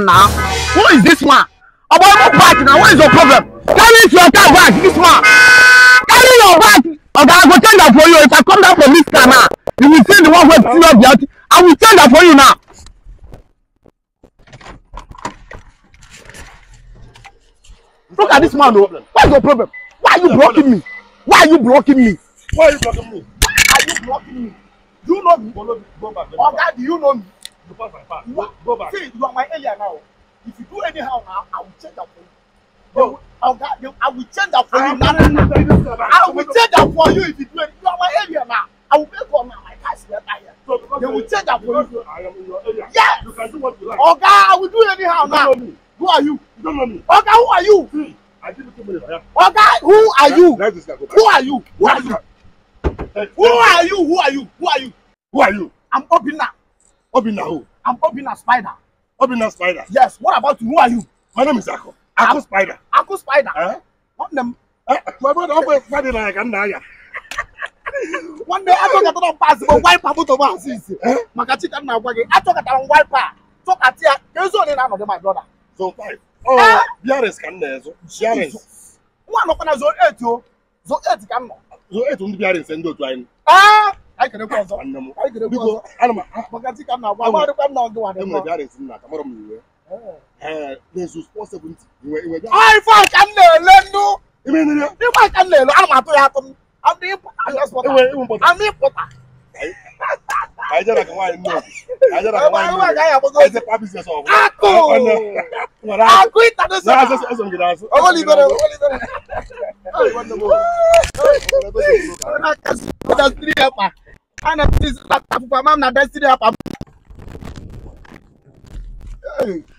now? Who is this man? About your party now, what is your problem? Carry your car back, this man. Carry your back. Okay, I go change that for you. If I come down from this car now, you will see the one who is serious guilty. I will change that for you now. Look at this man, though. What is your problem? Why are you blocking me? Why are you blocking me? Why are you blocking me? Why are you blocking me? you know me oga do you know me you pass are see you are my area now if you do anyhow now i will change that for you. Oh. Oga, I will change that for you now. I will change that for you if you do it. You are my area now. I will make on my cash letter here. So they will change that for you. I am in your area. Yes. You can do what you like. Oga, I will do anyhow now. Know me. Who are you? You don't know me. Oga, who are you? See, I did it two minutes. Oga, who are you? Who are you? Who are you? Who are you? Who are you? Who are you? Who are you? I'm Obina. Obina who? I'm Obina Spider. Obina Spider? Yes. What about you? Who are you? My name is Ako. Ako I'm, Spider. Ako Spider? Huh? One them. Eh? My brother, Ako Spider like I'm Naya. One day, I talk about pass, but why Papa to pass? Maka chicken now, I talk about why Pa. Talk at here. There's only none of my brother. So five. Oh, eh? Biaris can there. So Biaris. One of them is zone eight, yo. Zone eight can. Zone eight, only Biaris and do twine. Ah! anyị kere kwa ọzọ anyị kere kwa ọzọ ana m maka dịka m na-agwa agwa dịkwa m na ọgụ wadị mma bịarịsị nna ka mara m iwe anyị fọ ka m na-ele ndụ ịgba ka m na-ele ana m atụ ya atụ m amị pụta akụ ịta ana this laptop for mom na destiny up. Hey.